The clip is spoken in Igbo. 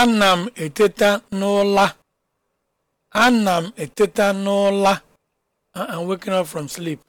ana m eteta n'ụla ana m eteta n'ụla uh-uh, I'm waking up from sleep.